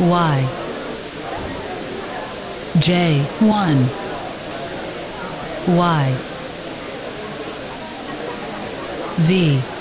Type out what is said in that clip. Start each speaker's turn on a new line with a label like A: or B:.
A: Y J 1 Y
B: V